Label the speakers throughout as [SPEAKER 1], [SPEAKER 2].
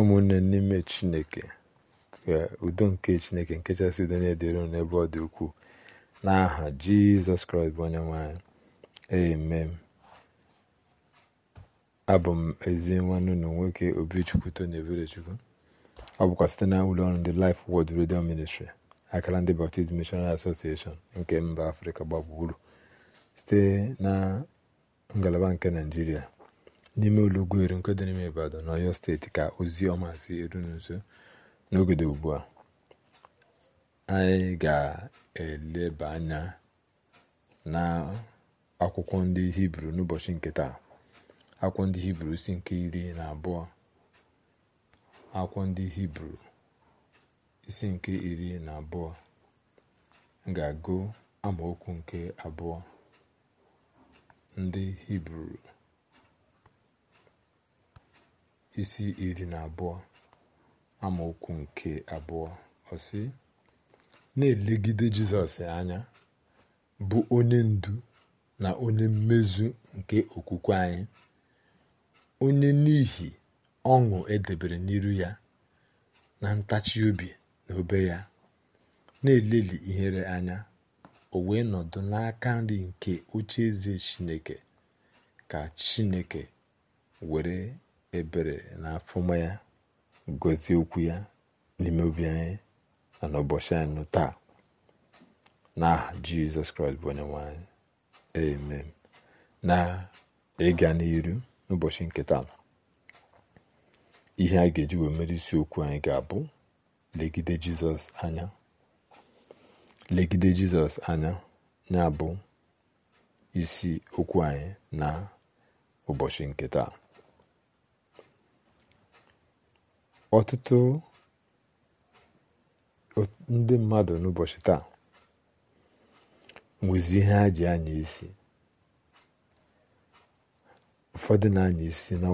[SPEAKER 1] ụmụnne n'ime chineke ka udo nke chineke nke chasị udo na-edere n'ebe ọ dị ukwuu n'aha jizọs kraịst bụ onye nwanyị amen abụ m ezi nwanne unu nwoke obichukwu tony eberechukwu ọ bụkwa site na ụlọọrụ ndị lif wod Radio Ministry akara ndị Baptist Missionary Association nke mba afrịka gbagburu site na ngalaba nke naijiria n'ime olugbo eru nke dị n'ime Ibadan na Ọyọ steeti ka ozi ọma si eru nso n'oge ugbu a anyị ga-eleba anya na akwụkwọ ndị hibru n'ụbọchị nke taa akwụkwọ ndị hibru si nke iri na abụọ akwụkwọ ndị hibru isi nke iri na abụọ ga-agụ amaokwu nke abụọ ndị hibru isi iri na abụọ amaokwu nke abụọ ọsị na-elegide jizọs anya bụ onye ndu na onye mmezu nke okwukwe anyị onye n'ihi ọṅụ edebere n'iru ya na ntachi obi na obe ya na-eleli ihere anya o wee nọdụ n'aka nri nke oche eze chineke ka chineke were ebere na afụma ya gozie okwu ya n'ime obi anyị na n'ụbọchị anyị taa n'aha jizọs kraịst bụ onye nwanyị, anyị amen na ịga n'iru n'ụbọchị nketa nọ. ihe a ga-eji wee mere okwu anyị ga-abụ legide jizọs anya legide jizọs anya ya bụ isi okwu anyị na ụbọchị nketa. ọtụtụ ndị mmadụ n'ụbọchị taa nwezi ihe ha ji anya isi ụfọdụ na-anya isi na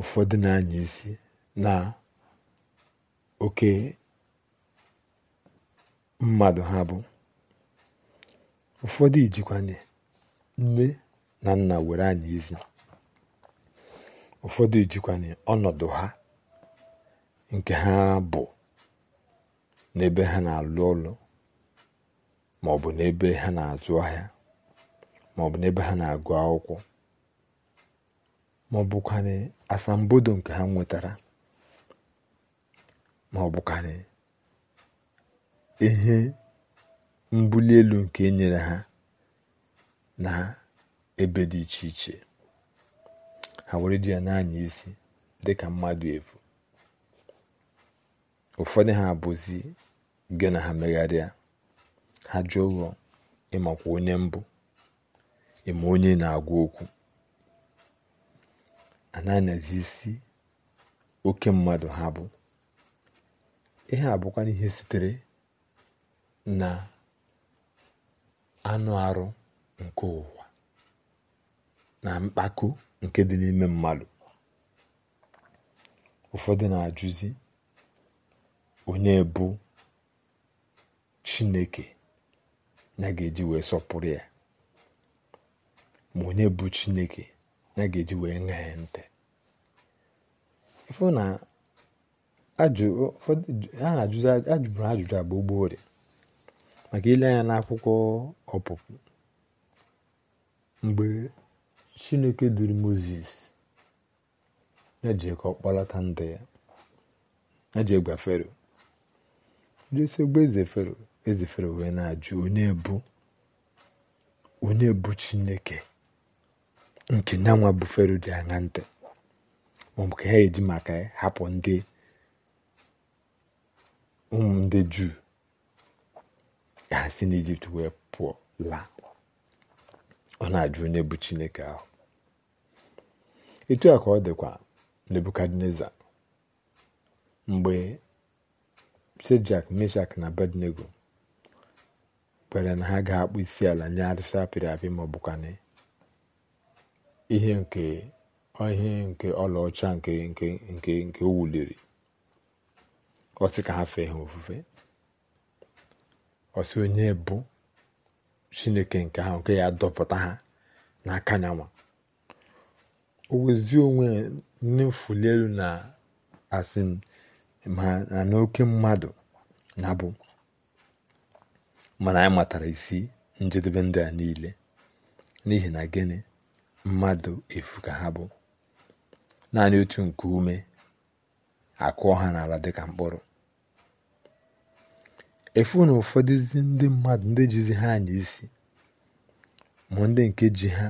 [SPEAKER 1] ụfọdụ na-anya isi na oke mmadụ ha bụ ụfọdụ ijikwa nne na nna were anya isi ụfọdụ jikwanye ọnọdụ ha nke ha bụ n'ebe ha na-alụ ọlụ ma ọ bụ n'ebe ha na-azụ ahịa ma ọ bụ n'ebe ha na-agụ akwụkwọ ma ọ asambodo nke ha nwetara ma ọ ihe mbuli elu nke enyere nyere ha na ebe dị iche iche ha were ji ya na-anya isi dị ka mmadụ efu ụfọdụ ha bụzi gị na ha megharịa ha jụọ ụgwọ ịmakwa onye mbụ ịma onye na-agwa okwu a na isi oke mmadụ ha bụ ihe abụkwa ihe sitere na anụ arụ nke ụwa na mkpako nke dị n'ime mmadụ ụfọdụ na-ajụzi onye bụ chineke ya ga-eji wee sọpụrụ ya ma onye bụ chineke ya ga-eji wee ṅaa ya ntị na ha na-ajụzi ajụbụrụ ajụjụ agba gboorie maka ile anya n'akwụkwọ ọpụpụ mgbe chineke duru moses ya ji ka ọ ndị ya ya ji gwa fero josef gba eze fero eze fero wee na-ajụ onye bụ onye bụ chineke nke ya bụ fero ji aṅa ntị maọbụ ka ha eji maka ya hapụ ndị ụmụ ndị juu ka ha si n'Ijipt wee pụọ laa ọ na-ajụ onye bụ chineke ahụ etu a ka ọ dịkwa nebukadneza mgbe shedrak meshak na bednego kwere na ha ga-akpụ isi ala nye arịsị apịrị apị ma ọ ihe nke ihe nke ọlaọcha nke nke nke nke o wuliri ọ sị ka ha fee ha ofufe ọsị onye bụ chineke nke ahụ nke ya dọpụta ha n'aka anyanwụ o wezi onwe nne elu na asị ma na n'oke mmadụ na-abụ mana anyị matara isi njedebe ndị a niile n'ihi na gịnị mmadụ efu ka ha bụ naanị otu nke ume akụọ ha n'ala dịka mkpụrụ efu na ụfọdụzi ndị mmadụ ndị jizi ha anya isi ma ndị nke ji ha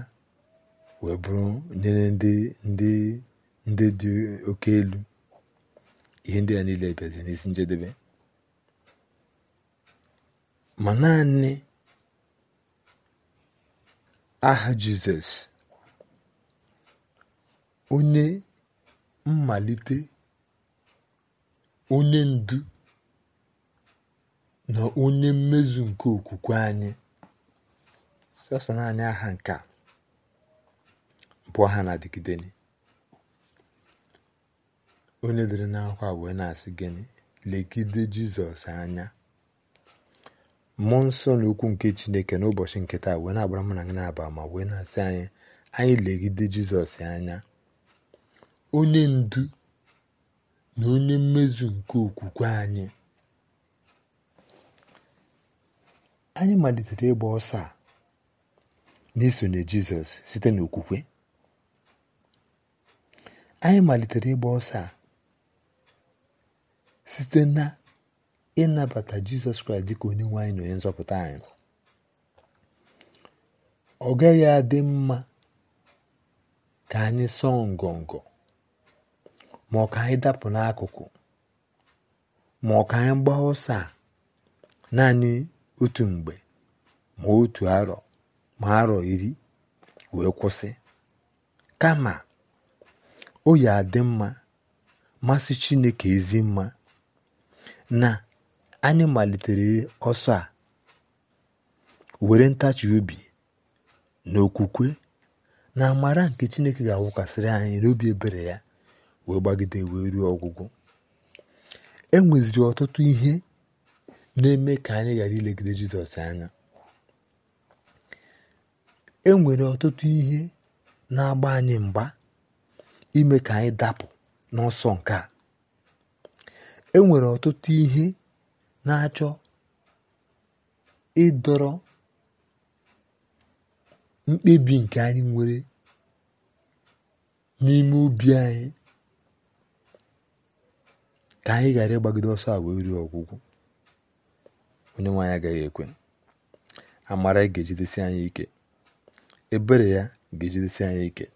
[SPEAKER 1] wee bụrụ nyere ndị ndị ndị dị oke elu ihe ndị ya niile bịazi n'isi njedebe ma naanị aha jizọs onye mmalite onye ndu na onye mmezu nke okwukwe anyị sọsọ naanị aha nke a bụ aha na-adịgide onye dere n'akwa wee na-asị gịnị legide jizọs anya mmụọ nsọ na okwu nke chineke n'ụbọchị nke taa wee na-agbara mụ na gị na-aba ma wee na-asị anyị anyị legide jizọs anya onye ndu na onye mmezu nke okwukwe anyị anyị malitere ịgba ọsọ a n'isonye jizọs site n'okwukwe anyị malitere ịgba ọsọ a site na ịnabata jizọs kraịst dịka onye nwe anyị na onye nzọpụta anyị ọ gaghị adị mma ka anyị sọọ ngọngọ ma ọ ka anyị dapụ n'akụkụ ma ọ ka anyị gbaa ọsọ a naanị otu mgbe ma otu arọ ma arọ iri wee kwụsị kama o yi adị mma masị Chineke ezi mma na anyị malitere ọsọ a were ntachi obi na okwukwe na amara nke Chineke ga awụkasịrị anyị n'obi ebere ya wee gbagide wee ruo ọgwụgwụ e nweziri ọtụtụ ihe na-eme ka anyị ghara ilegide jizọs anya e nwere ọtụtụ ihe na-agba anyị mgba ime ka anyị dapụ n'ọsọ nke a e nwere ọtụtụ ihe na-achọ ịdọrọ mkpebi nke anyị nwere n'ime obi anyị ka anyị ghara ịgbagide ọsọ a wee ruo ọgwụgwụ onye nwaanyị agaghị ekwe amara ga-ejidesi anyị ike ebere ya ga-ejidesi anyị ike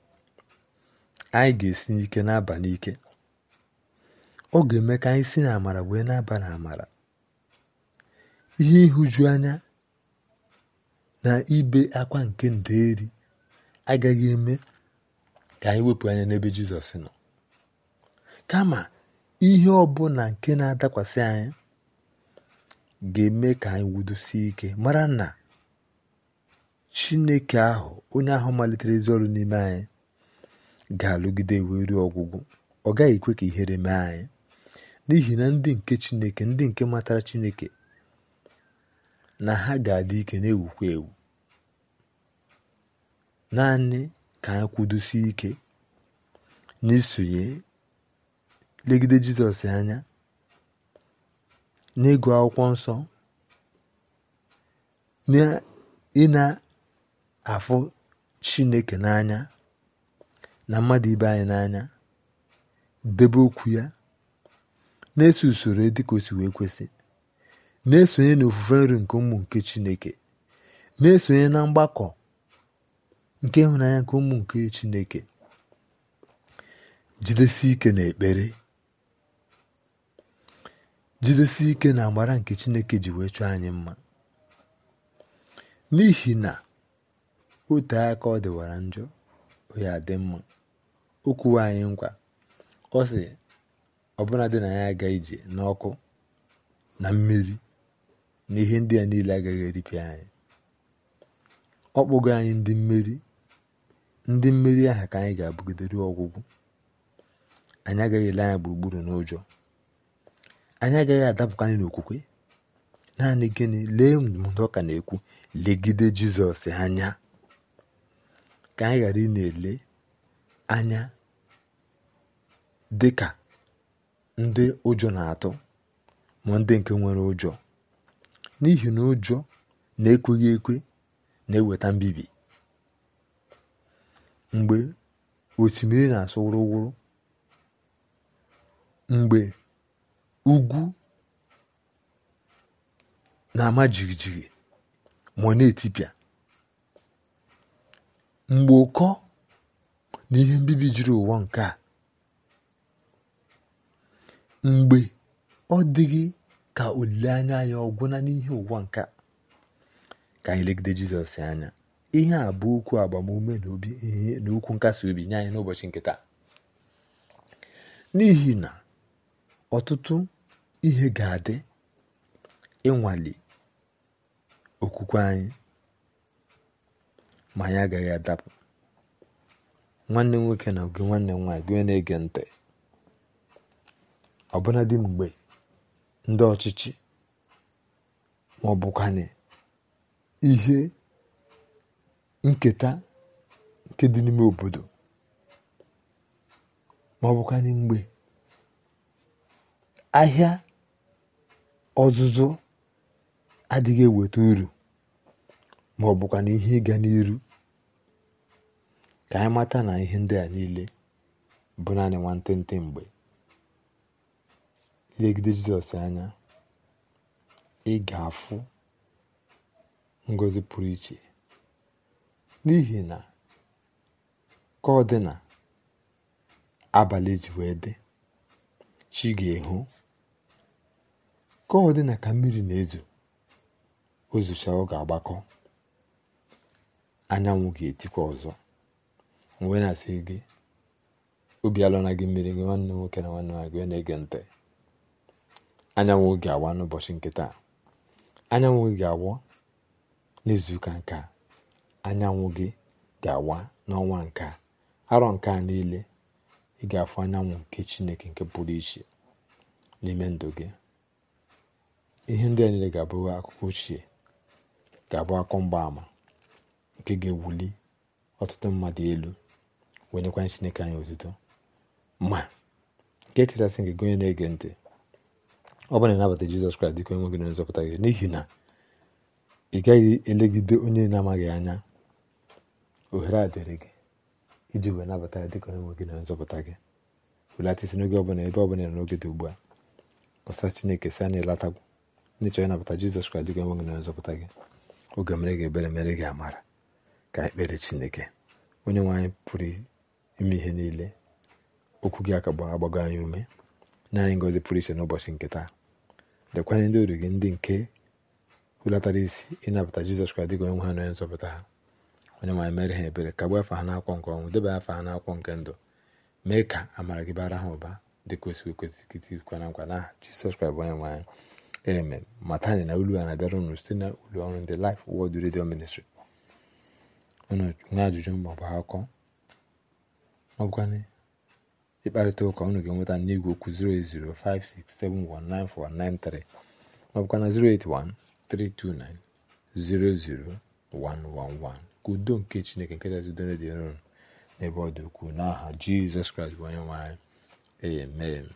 [SPEAKER 1] anyị ga-esi n'ike na-aba n'ike ọ ga-eme ka anyị si n'amara wee na-aba na amara ihe ịhụju anya na ibe akwa nke nderi agaghị eme ka anyị wepụ anya n'ebe Jizọs nọ kama ihe ọ ọbụla nke na-adakwasị anyị ga-eme ka anyị wudosie ike mara na chineke ahụ onye ahụ malitere ezi ọrụ n'ime anyị ga-alụgide wee ruo ọgwụgwụ ọ gaghị ekwe ka ihere mee anyị n'ihi na ndị nke chineke ndị nke matara chineke na ha ga-adị ike na-ewukwa ewu naanị ka anyị kwudosie ike n'isonye legide jizọs anya n'ịgụ akwụkwọ nsọ ị na-afụ chineke n'anya na mmadụ ibe anyị n'anya debe okwu ya na-eso usoro dịka osi wee kwesị na-esonye n'ofufe nri nke ụmụ nke chineke na-esonye na mgbakọ nke ịhụnanya nke ụmụ nke chineke Jidesi ike n'ekpere jidesi ike na agbara nke Chineke ji wee chọọ anyị mma n'ihi na ote aka ọ dịwara njọ ya dị mma o kwuwe anyị nkwa ọ sị ọbụla dị na ya aga ije n'ọkụ na mmiri na ihe ndị a niile agaghị eripịa anyị ọ kpụgo anyị ndị mmeri ndị mmeri aha ka anyị ga-abụgidere ọgwụgwụ anyị agaghị ele anya gburugburu n'ụjọ anya agaghị adapụkarị n'okwukwe naanị gịnị lee ndụmọdụ ọka na-ekwu legide jizọs anya ka anyị ghara ị na-ele anya dị ka ndị ụjọ na-atụ ma ndị nke nwere ụjọ n'ihi na ụjọ na-ekweghị ekwe na-eweta mbibi mgbe osimiri na-asụ wụrụwụrụ mgbe ugwu na-ama jijiji ma na-etipịa mgbe ụkọ na ihe mbibi jiri ụwa nke a mgbe ọ dịghị ka olileanya ya ọgwụna n'ihe ụwa nke a ka anyị legide jizọs anya ihe a bụ okwu agbamume na obi ihe na okwu nkasi obi nye anyị n'ụbọchị nkịta n'ihi na ọtụtụ ihe ga-adị ịnwale okwukwe anyị ma anyị agaghị adapụ nwanne nwoke na gị nwanne m nwaanyị gị na-ege ntị dị mgbe ndị ọchịchị ma ọ bụkwanye ihe nketa nke dị n'ime obodo ma ọ bụkwanye mgbe ahịa ọzụzụ adịghị eweta uru ma ọ na ihe ịga n'iru ka anyị mata na ihe ndị a niile bụ naanị nwantịntị mgbe ilegide jizọs anya ị ga-afụ ngozi pụrụ iche n'ihi na ka ọ dị na abalị ji wee dị chi ga-ehu ka ọ dị na ka mmiri na-ezo ozucha ọ agbakọ anyanwụ ga-etikwa ọzọ wee na-asị gị obi alụ na gị mmiri gị nwanne nwoke na nwanne nwaanyị gị na-ege ntị anyanwụ oge awa n'ụbọchị nke taa anyanwụ gị ga n'izuụka nke a anyanwụ gị ga-awa n'ọnwa nke a arọ nke a niile ị ga-afụ anyanwụ nke chineke nke pụrụ iche n'ime ndụ gị ihe ndị a niile ga-abụ akụkọ ochie ga-abụ akọ mgbaàmà nke ga-ewuli ọtụtụ mmadụ elu wenyekwa chineke anyị otuto ma nke kachasị nke gị onye na-ege ntị ọ bụrụ na ịnabata jizọs kraịst dịka onye nwe gị na nzọpụta gị n'ihi na ị gaghị elegide onye na-amaghị anya ohere a dịrị gị iji wee nabata ya dịka onye nwe gị na nzọpụta gị welatisi n'oge ọbụla ebe ọbụla n'oge dị ugbu a ọsa chineke si na latagwu ndị chọrọ ịnabata jizọs kraịst dịka onwe gị na nzọpụta gị oge mere gị ebere mere gị amara ka ekpere chineke onye nwe pụrụ ime ihe niile okwu gị aka agbago anya ume nye anyị ngozi pụrụ iche n'ụbọchị nke taa dekwanye ndị oru gị ndị nke hulatara isi ịnabata jizọs kraịst dịka onwe ha na nzọpụta ha onye nwe mere ha ebere kagbuo afa ha n'akwọ nke ọnwụ debe afa ha n'akwọ nke ndụ mee ka amara gị bara ha ụba dịka o si ekwesị kịtịkwa na nkwa na jizọs kraịst bụ onye nwe anyị eme matani na olu a na-abịara site na ụlọ ọrụ ndị Life Word Radio Ministry unu nwee ajụjụ maọbụ akọ ọgwanị ịkparịta ụka unu ga-enweta n'igwe okwu 08056719493 maọbụkwana 08132900111 ka udo nke Chineke nke jazi donedịron n'ebe ọ dị ukwuu n'aha Jizọs Kraịst bụ onye nwe anyị amen